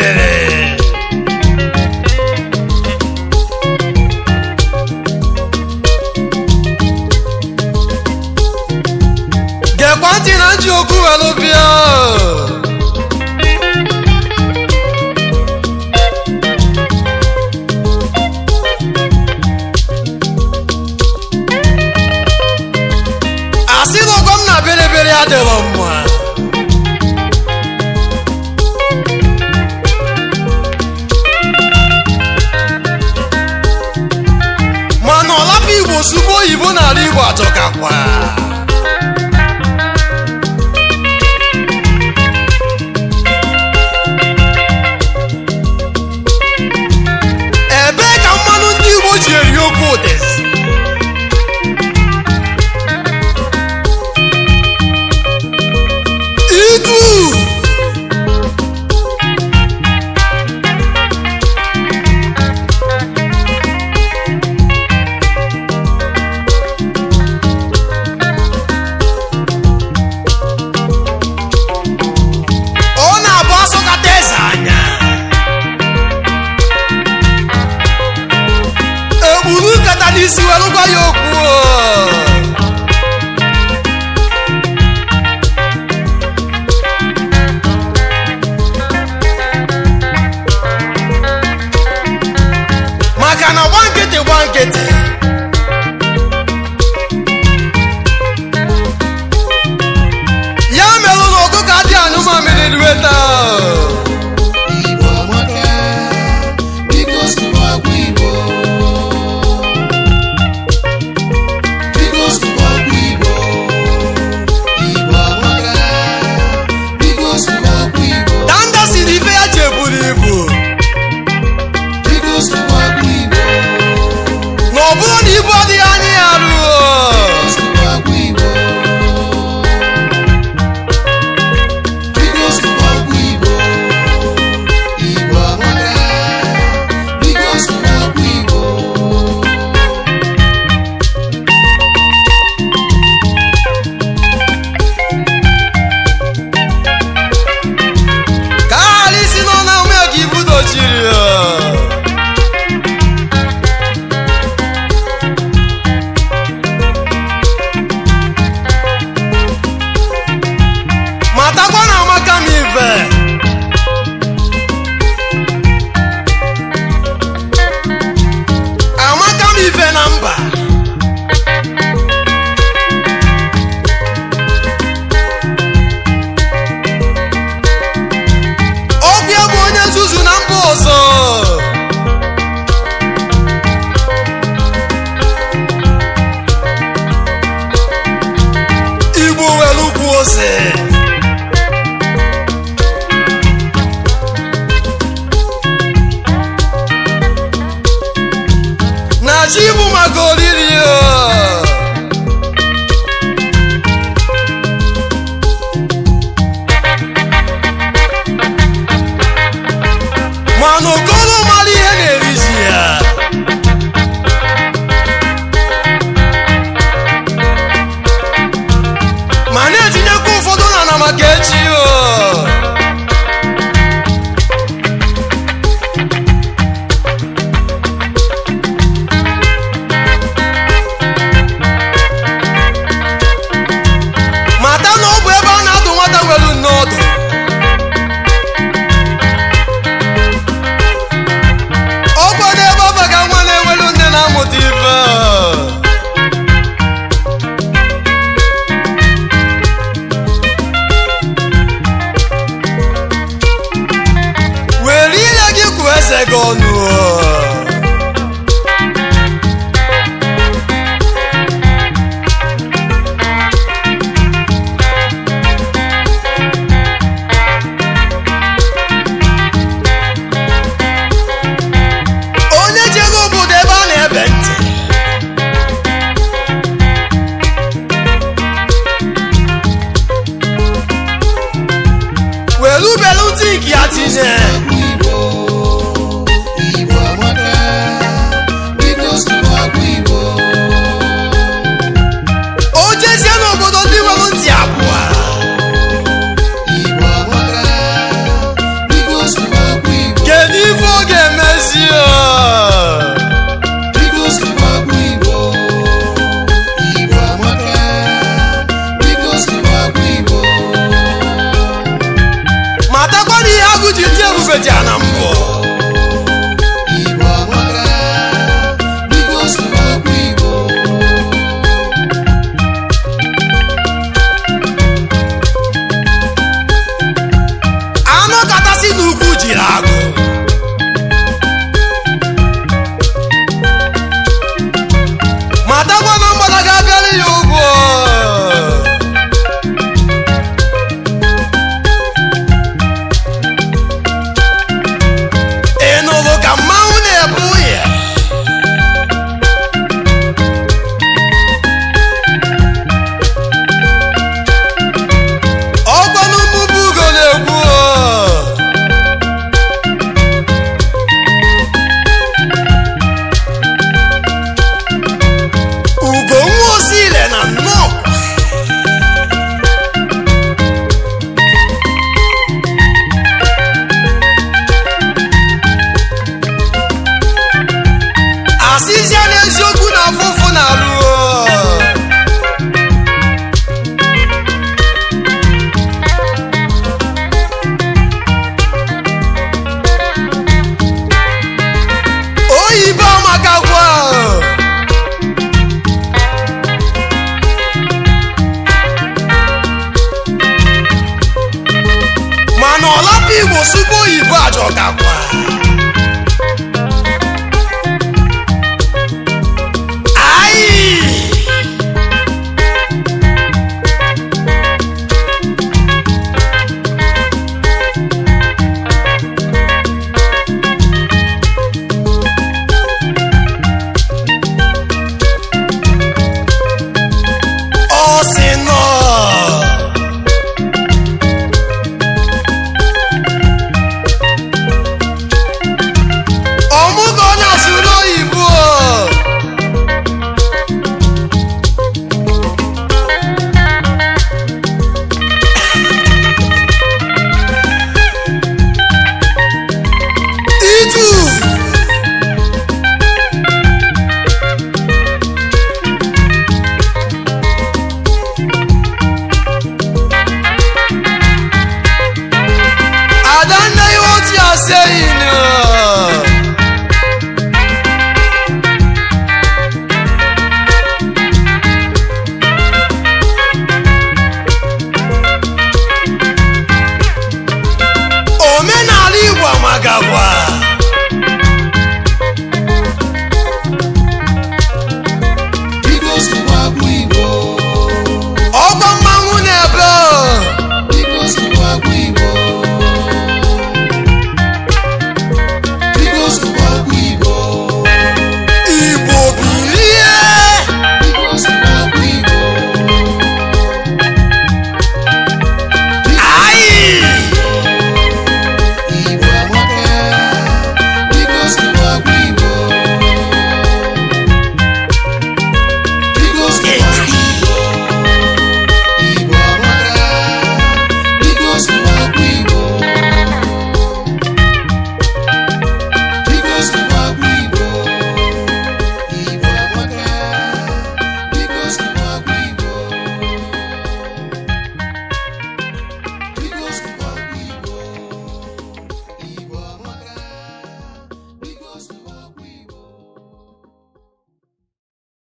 baby. osubo oyibo n'ala Igbo atọkakwa isi were gwa ya okwu ife dị ana ọ gakwa